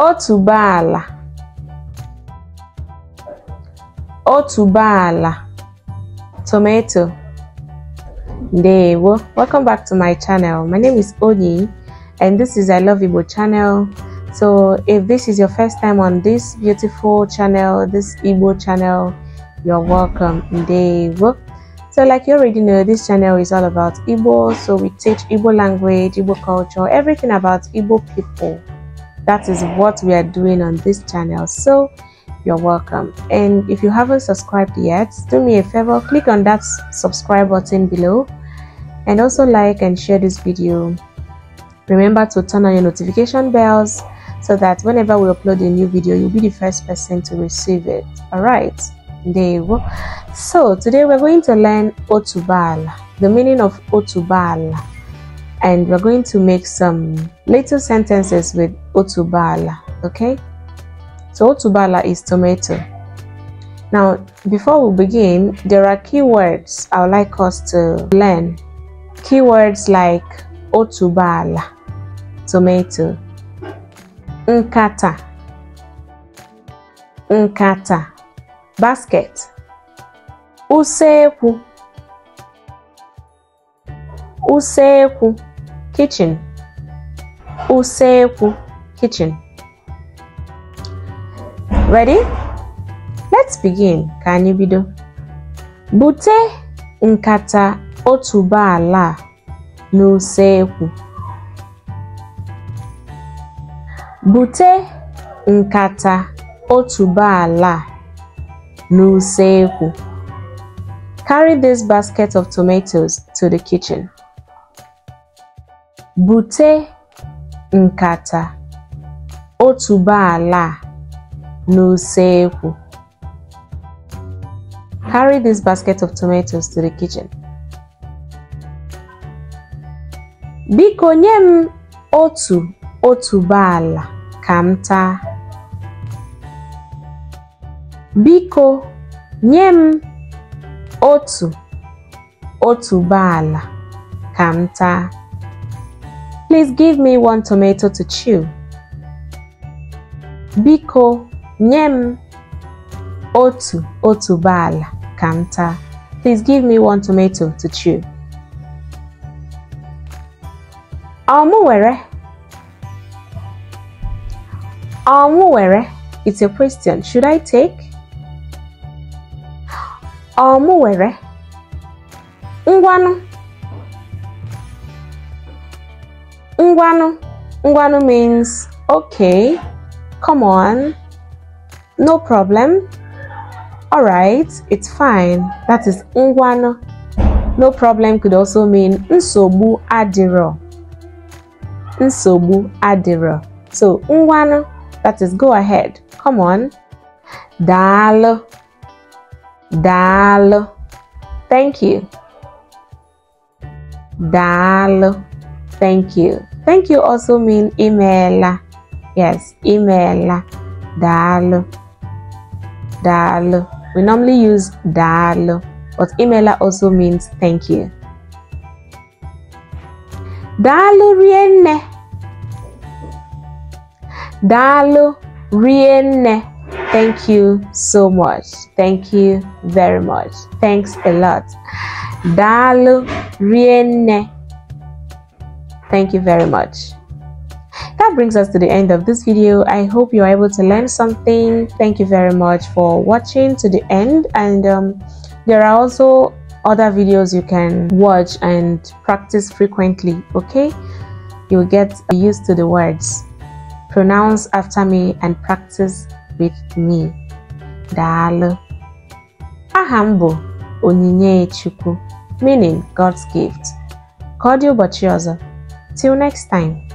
Otubala, Otubala, tomato Ndewo. Welcome back to my channel. My name is Oni, and this is I Love Igbo channel. So if this is your first time on this beautiful channel, this Igbo channel, you're welcome. Ndewo. So like you already know, this channel is all about Igbo. So we teach Igbo language, Igbo culture, everything about Igbo people that is what we are doing on this channel so you're welcome and if you haven't subscribed yet do me a favor click on that subscribe button below and also like and share this video remember to turn on your notification bells so that whenever we upload a new video you'll be the first person to receive it all right there so today we're going to learn otubal the meaning of otubal and we're going to make some Little sentences with otubala, okay? So otubala is tomato. Now, before we begin, there are keywords I would like us to learn. Keywords like otubala, tomato, nkata, nkata, basket, usekwu, usekwu, kitchen, useku, kitchen. Ready? Let's begin. Ka anyị bido. Bute nkata otuboala n'usekwu. Bute nkata otuboala n'usekwu. Carry this basket of tomatoes to the kitchen. Bute nkata otuboala a n'usekwu. Carry this basket of tomatoes to the kitchen. Biko nye m otu ka m taa. Biko nye m otu otuboala ka m taa. Please give me one tomato to chew. Biko, nyem, m otu otuboala kanta. Please give me one tomato to chew. Ọmụ were. It's a question. Should I take? Ọmụ were. Ngwanu. Ngwanu means okay, come on, no problem, all right, it's fine. That is Ngwanu. No problem could also mean Nsobu Adiro. Nsobu Adiro. So Ngwanu, that is go ahead, come on. Dalo. Dalo. Thank you. Dalo. Thank you. Thank you also mean email. Yes, email. Dal. Dalu. We normally use dalu, but emailer also means thank you. Dalu rienne. Dalu rienne. Thank you so much. Thank you very much. Thanks a lot. Dalu rienne. Thank you very much. That brings us to the end of this video. I hope you're able to learn something. Thank you very much for watching to the end. And um, there are also other videos you can watch and practice frequently, okay? You'll get used to the words. Pronounce after me and practice with me. Daalu. Ahambo Onyinye Chukwu, meaning God's gift. Cordial Bachioza. Till next time.